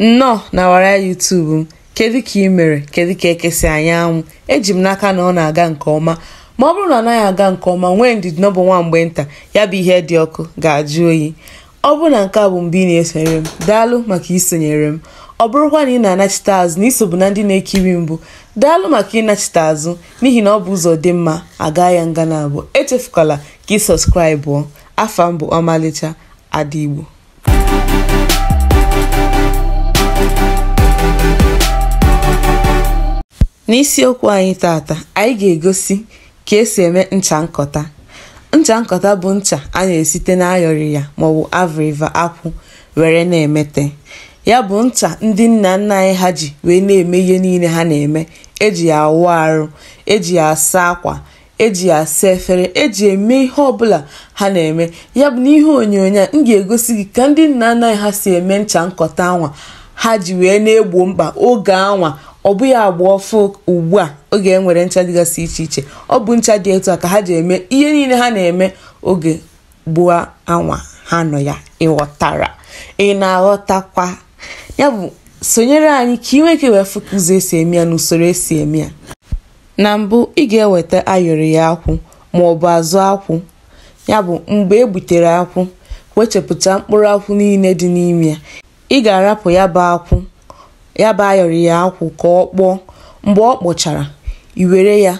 nnọọ na wara yutubu m kedu ka ị mere kedu ka ekesi anyị anwụ eji m n'aka na ọ na-aga nke ọma ma ọ bụrụ na ọ naghị aga nke ọma nwee ndidi n'ọbụ nwa mgbe nta ya bụ ihe dị ọkụ ga-ajụ oyi ọ bụrụ na nke a bụ mgbe ị na-esonyere m daalụ maka isonyere m ọ bụrụkwa na ị na-anachite azụ na isobu na ndị na-ekiri mbụ daalụ maka ịnachite azụ n'ihi na ọ bụ ụzọ dị mma aga ya nga na abụọ echefukwala ka ị sọskraịbụ afa mbụ ọmalịcha ada igbo n'isiokwu anyị tata anyị ga-egosi ka esi eme ncha nkọta ncha nkọta bụ ncha a na-esite n'ayọrị ya maọbụ avriva akwụ were na-emete ya bụ ncha ndị nna nna anyị ha ji wee na-eme ihe niile ha na-eme eji ya awụ arụ eji ya asa akwa eji ya asa efere eji eme ihe ọbụla ha na-eme ya bụ n'ihe onyonyo a m ga-egosi gị ka ndị nna nna anyị ha si eme ncha nkọta anwa ha ji wee na-egbo mkpa oge anwa ọ bụghị agba ọfụ ugbu a oge e nwere ncha dịgasị iche iche ọ bụ ncha dị etu a ka ha ji eme ihe niile ha na-eme oge gbuo anwa ha nọ ya ịghọtara ị na-aghọtakwa ya bụ sonyere anyị ka ị nweke wee fụka ụzọ esi eme ya na usoro esi eme ya na mbụ ị ga-eweta ayọrị ya akwụ ma ọ bụ azụ akwụ ya bụ mgbe e gbutere akwụ wechapụta mkpụrụ akwụ niile dị n'ime ya ị ga-arapụ ya bụ akwụ bụ ayọrọ ya akwụ ka ọ kpọọ, mgbe ọ kpọchara, iwere ya,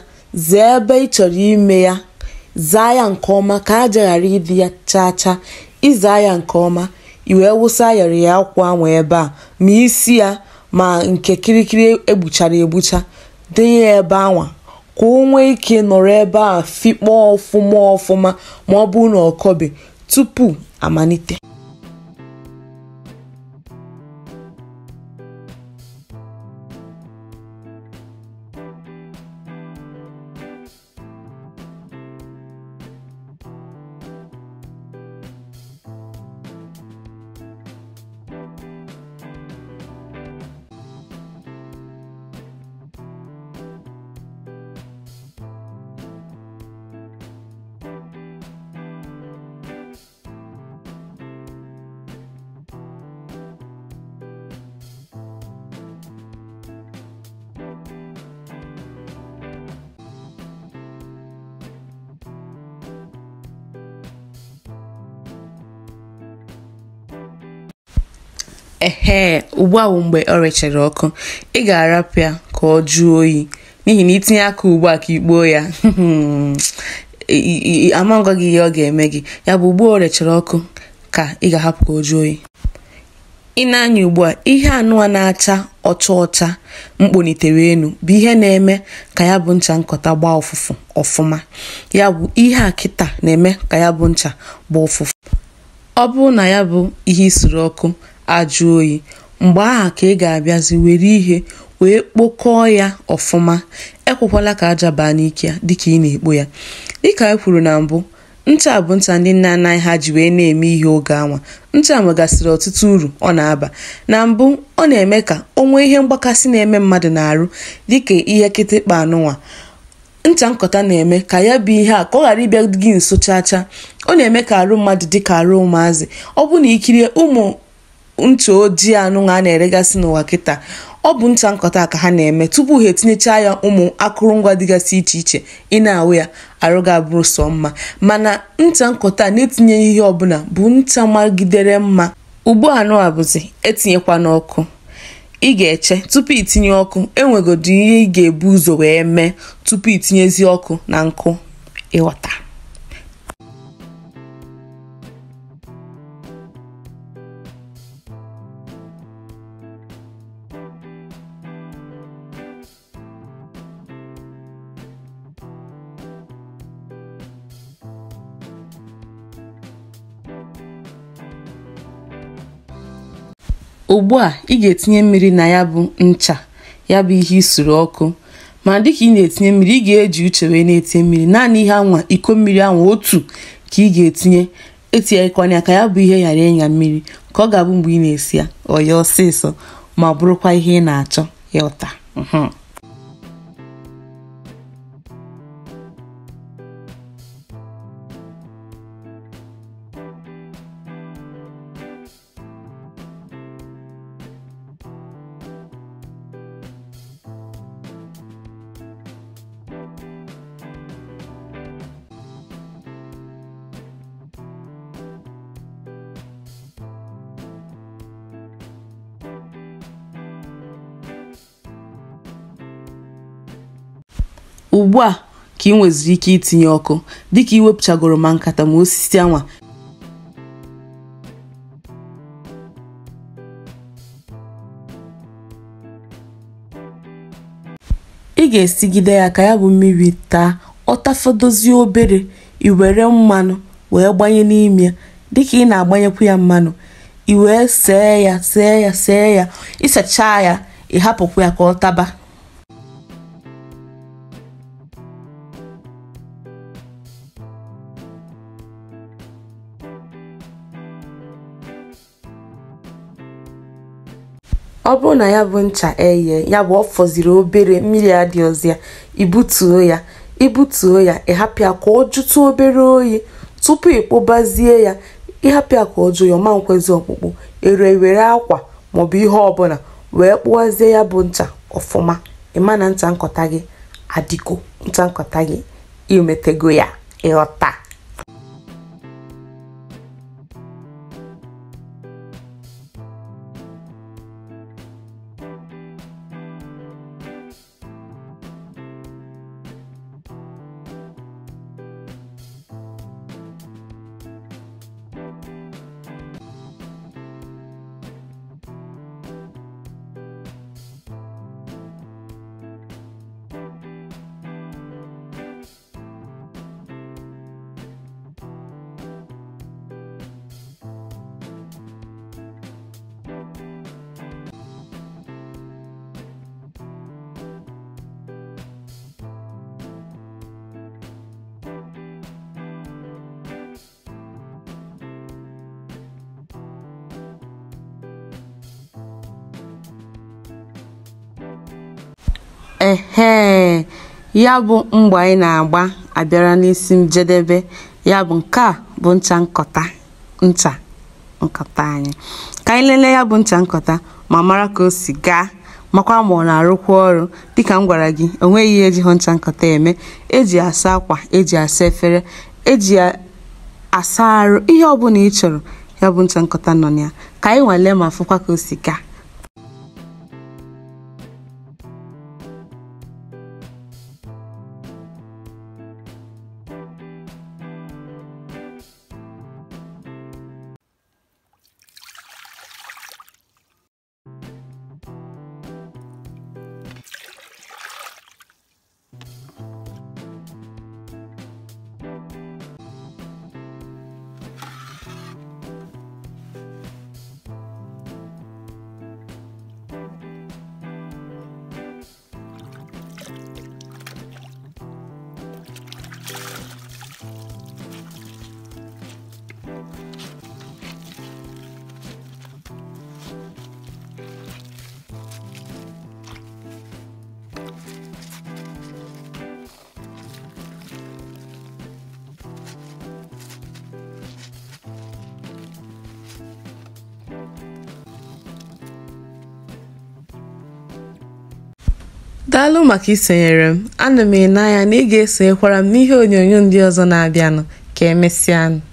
zaa ebe ị chọrọ ime ya, zaa ya nke ọma ka aja ghara ịdị ya chaa chaa, ị ya nke ọma, iwee wee wụsa ayọrọ ya akwụ anwụ ebe a ma isi ya ma nke kirikiri egbuchara egbucha, denye ya ebe anwa ka o ike nọrọ ebe a fịkpọọ ọfụma ọfụma ma ọ bụrụ na tupu amalite. ehe ugbu ahụ mgbe ọ rechara ọkụ ị ga-arapụ ya ka ọ jụọ oyi n'ihi na itinye aka ugbu a ka ikpuo ya amangwa gị ihe ọ ga-eme gị ya bụ ugbu o rechara ọkụ ka ị ga-ahapụ ka o jụọ oyi ị na-anya ugbu a ihe anụwa na-acha ọcha ọcha mkponitere elu bụ ihe na-eme ka ya bụ ncha nkọta gbaa ụfụfụ ọfụma ya bụ ihe a kịta na-eme ka ya bụ ncha gbaa ụfụfụ ọ bụrụ na ya bụ ihe isuru ọkụ ajụ oyi mgbe aha ka ị ga-abịazi were ihe wee kpokọọ ya ọfụma ekwekwala ka aja baa n'ike dịka ị na-ekpo ya dịka anyị e kwuru na mbụ ncha bụ ncha ndị nna anaghị ha ji wee na-eme ihe oge anwa ncha nwegasịrị ọtụtụ uru ọ na-aba na mbụ ọ na-eme ka o nwee ihe mgbakasị na-eme mmadụ na-arụ dịka ihe kịtịkpa anụnwa ncha nkọta na-eme ka ya bụ ihe a ka ọ ghara ịbịa gị nso chaa ọ na-eme ka arụ mmadụ dịka arụ ụmụazị ọ bụ na ikirie ụmụ ntụ ojii anụnwa a na-eregasị n'ụwa kịta ọ bụ ncha nkọta ka ha na-eme tupu ha etinyechaa ya ụmụ akụrụngwa dịgasị iche iche ị na-awụ ya arụ ga-abụrụ sọ mma mana ncha nkọta na-etinyeghị ihe ọbụla bụ ncha magidere mma ugbo anụ bụzi etinyekwa n'ọkụ ị ga-eche tupu itinye ọkụ enwegodo ihe ị ga-ebu ụzọ wee mee tupu itinyezie ọkụ na nkụ ịghọta ugbu a ị ga-etinye mmiri na ya bụ ncha ya bụ ihe isuru ọkụ ma dịka ị na-etinye mmiri ị ga-eji uche wee na-etinye mmiri naanị ihe anwa iko mmiri anwa otu ka ị ga-etinye etinyekwanye aka ya bụ ihe ghara ịnya mmiri ka ọ ga-abụ mgbe ị na-esi ya ọ ya ọsịsọ ma bụrụkwa ihe ị na-achọ ya ọta. Hm. ugbu a ka ị nweziri ike itinye ọkụ dịka iwepụchagoro ma nkata ma osisi anwa ị ga-esigide ya ka ya bụ mmiri taa ọ ọtafodozie obere ị were mmanụ wee gbanye n'ime dịka ị na-agbanyekwu ya mmanụ i wee see ya see ya see ya ịsachaa ya ị hapụkwu ya ka ọ taba ọ bụrụ na ya bụ ncha eye ya bụ ọ fọziri obere mmiri adịghịzi ya ibutuo ya ibutuo ya ịhapụ ya ka ọ jụtụ obere oyi tupu ịkpụbazie ya ịhapụ ya ka ọ jụ ya ọma nkwezi ọkpụkpụ ere were akwa maọbụ ihe ọbụla wee kpụwazie ya bụ ncha ọfụma ịma na ncha nkọta gị adịgo ncha nkọta gị imetego ya ịghọta ehee ya bụ mgba anyị na-agba abịara n'isi njedebe ya bụ nke a bụ ncha nkọta ncha nkọta anyị ka anyị lelee ya bụ ncha nkọta ma mara ka o si gaa makwa ma ọ na-arụkwa ọrụ dịka m gwara gị o nweghị ihe eji hụ ncha nkọta eme eji asa akwa eji asa efere eji asa arụ ihe ọbụla ị chọrọ ya bụ ncha nkọta nọ na ya ka anyị nwalee ma fụkwa ka o si gaa daalụ maka isonyere m ana m ene anya na ị ga-esonyekwara m n'ihe onyonyo ndị ọzọ na-abịanụ ka emesịanụ